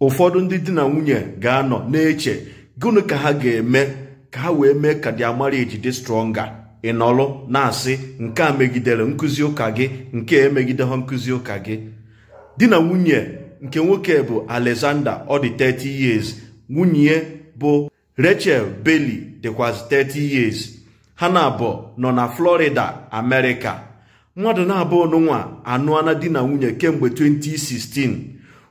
ụfọdụ ndị di na nwunye ga-anọ na-eche gịnị ka ha ga-eme ka ha wee mee ka their marriage dị stronger ị na-asị nke a megidere nkụzi ụka gị nke emegideghị nkụzi ụka gị di na nwunye nke nwoke bụ Alexander ọ dị 30 years nwunye bụ Rachel Bailey dịkwazị 30 years ha na-abụ nọ na Florida amerika mmadụ na-abụọ n'ụwa anụana di na nwunye kemgbe 2016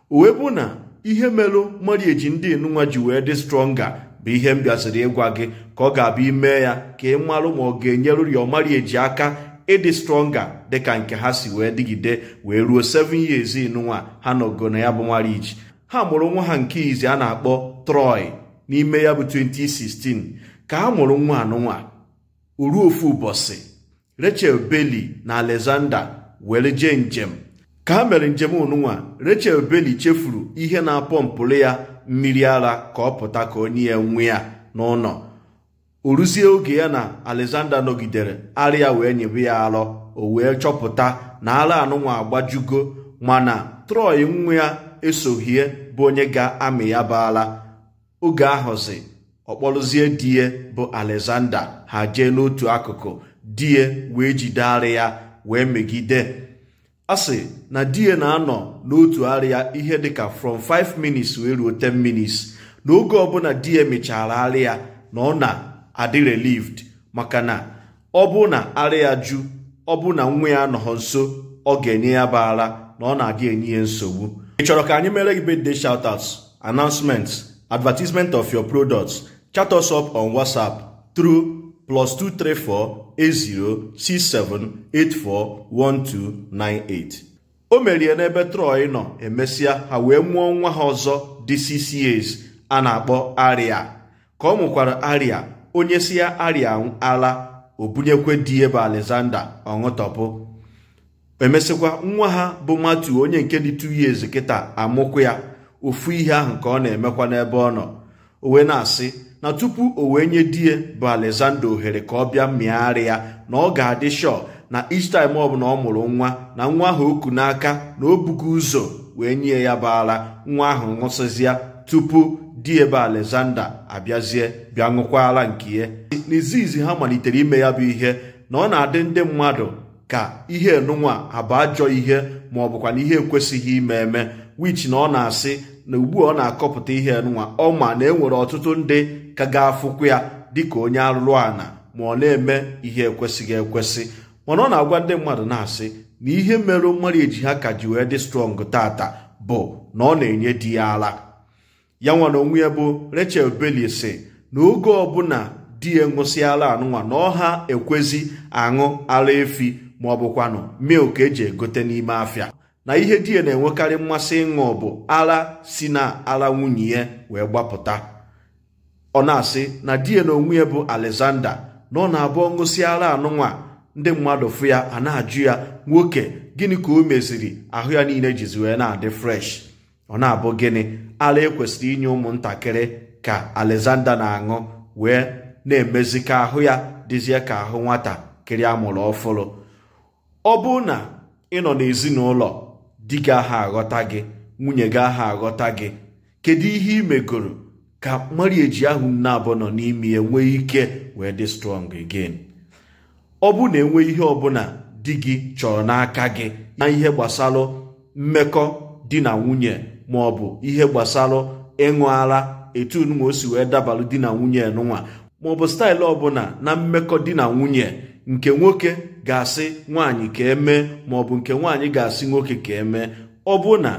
uwe bụ na ihe melụ marieji ndị nụnwa ji wee dị stronga bụ ihe m bịaziri ịgwa gị ka ọ ga-abụ ime ya ka ị marụ ma ọ ga-enyerụri ọmarieji aka ịdị stronga dịka nke ha si wee dịgide wee ruo 7 years nụnwa ha nọgo na ya bụ marieji ha mụrụ nwa ha nke izi a na-akpọ Troy n'ime ya bụ 2016 ka ha mụrụ nwa anụnwa oruofu ụbọchị Rachel Bailey na Alexander were jee njem ka ha mere njem ununwa Rachel Berry chefuru ihe na-apọmpụrụ ya mmiri ara ka ọ pụta ka onye ya nwe ya n'ụlọ o ruzie oge ya na Alexander nọgidere arịa wee nyebe ya arọ o wee chọpụta na ara anụnwa agbajugo mana Troy nwa ya esohie bụ onye ga-amị ya baala oge ahụzi ọkpọrụzie die bụ Alexander ha jee n'otu akụkụ die wee jide arịa ya wee megide a sị na di ya na-anọ n'otu arịa ihe dịka from 5 minutes wee ruo 10 minutes n'oge ọbụla di ya mechara arịa na ọ na-adị relieved maka na ọ bụ na arịa ju ọ bụ na nwa ya nọghọ nso ọ ga-enye ya bara na ọ na-adị enye ya nsogbu ị chọrọ ka anyị mere gị birthday shoutouts announcements advertisement of your products chat us up on WhatsApp through plus 2348067841298 o merie n'ebe Troy nọ emesịa ha wee mụọ nwa ha ọzọ dị 6 years a na-akpọ Aria ka ọ mụkwara Aria onye si ya Aria ala obunyekwe di ebe Alexander ọṅụtọpụ emesịkwa nwa ha bụ Matu onye nke dị 2 years kịta amụkwa ya ofu ihe ahụ ka ọ na-emekwa n'ebe ọ nọ o na-asị na tupu o wee nye di ya bụ Alexander ohere ka ọ bịa mịgharị ya na ọ ga-adị shọ na each time ọ bụla ọ mụrụ nwa na nwa ahụ oku n'aka na o bugo ụzọ wee nye ya bara nwa ahụ ṅụsịzịa tupu di ebe Alexander abịazie bịa ṅụkwara nke ya n'izizi ha malitere ime ya bụ ihe na ọ na-adị ndị mmadụ ka ihe nụnwa abụ ajọ ihe ma ọ bụkwa na ihe ekwesịghị ime eme wich na ọ na-asị na ugbu ọ na-akọpụta ihe nwa ọ ma na enwere ọtụtụ ndị ka ga-afụkwu ya dịka onye arụrụ ana ma ọ na-eme ihe ekwesịghị ekwesị mana ọ na-agwa ndị mmadụ na-asị na ihe mere mmadụ eji ha ka ji wee dị strọng tata bụ na ọ na-enye di ya ala ya nwa na onwe ya bụ Rachel Bailey si na oge ọbụla di ya ṅụsịala anụnwa na ọha ekwezi aṅụ ara efi ma ọ milk eji egote n'ime afịa na ihe di ya na-enwekarị mmasị ịṅụ bụ ara si na ara nwunye ya wee gbapụta ọ na-asị na di ya na onwe ya bụ Alexander na ọ na-abụ ọṅụsi ara anụnwa ndị mmadụ fụ ya a na-ajụ ya nwoke gịnị ka o meziri ahụ ya niile jizi wee na-adị fresh ọ na-abụ gịnị ara ekwesịrị inye ụmụntakịrị ka Alexander na-aṅụ wee na-emezi ka ahụ ya dịzie ka ahụ nwata nwatakịrị amụrụ ọfụrụ ọ bụ na ị nọ n'ezinụlọ di gị aha aghọta gị nwunye gị aha aghọta gị kedu ihe imegoro megoro ka marieji ahụ na abụọ nọ n'ime ya ike wee dị strong again ọ bụ na enwe ihe ọbụla di gị chọrọ n'aka gị na ihe gbasara mmekọ di na nwunye ma ọ bụ ihe gbasara ịṅụ ara etu nwa o si wee dabalụ di na nwunye nụnwa maọbụ staịlụ ọbụla na mmekọ di na nwunye nke nwoke ga-asị nwaanyị ka emee maọbụ nke nwaanyị ga-asị nwoke ka emee ọ bụ na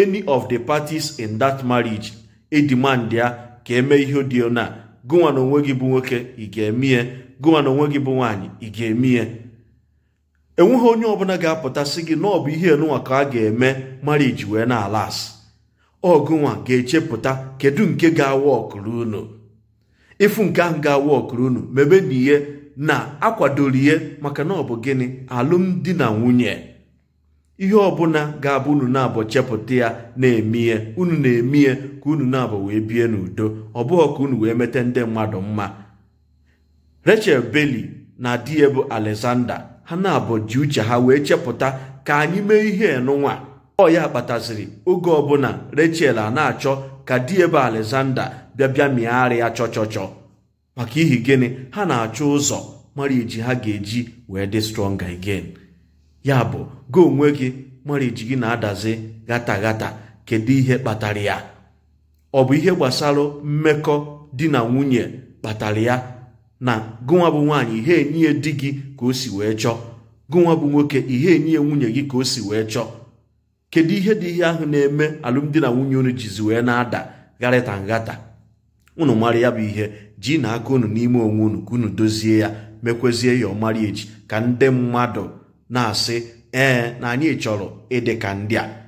any of the parties in that marriage edimand ya ka eme ihe dị na gụwa na onwe gị bụ nwoke ị ga-emie gụnwa na onwe gị bụ nwaanyị ị ga-emie enweghị onye ọbụla ga-apụta sị gị na ọ bụ ihe enunwa ka a ga-eme marriage wee na-ala asị ọgụnwa ga-echepụta kedu nke ga-awa ọkụrụ unu ịfụ nke ahụ ga-awa ọkụrụ unu mebe na ihe na akwadoro ihe maka na ọ bụ gịnị alụmdi na nwunye ihe ọbụla ga-abụ unu na-abụ chepụta ya na emie unu na-eme ka unu na-abụ wee bie n'udo ọ bụghị ka unu wee mete ndị mmadụ mma Rachel beli na di ya bụ Alexander ha na-abụ ji uche ha wee chepụta ka anyị mee ihe enụnwa ọ ya kpataziri oge ọbụla Rachel a na-achọ ka di ya bụ Alexander bịa bịa mịgharịa chọchọchọ maka ihi gịnị ha na-achọ ụzọ mara ha ga-eji wee dị strọnga again ya bụ go onwe gị mara gị na-adazi gata gata kedu ihe kpatara ya ọ bụ ihe gbasara mmekọ di na nwunye kpatara ya na gụnwa bụ nwaanyị ihe enyiye di gị ka o si wee chọọ gụnwa bụ nwoke ihe enyi nwunye gị ka o si wee chọọ kedu ihe dị ihe ahụ na-eme alụmdi na nwunye unu jizi wee na-ada garịta ngata unu mara ya bụ ihe ji na aka unu n'ime onwe unu ka unu dozie ya mekwezie ya echi ka ndị mmadụ na-asị ee na anyị chọrọ ịdị ka ndị a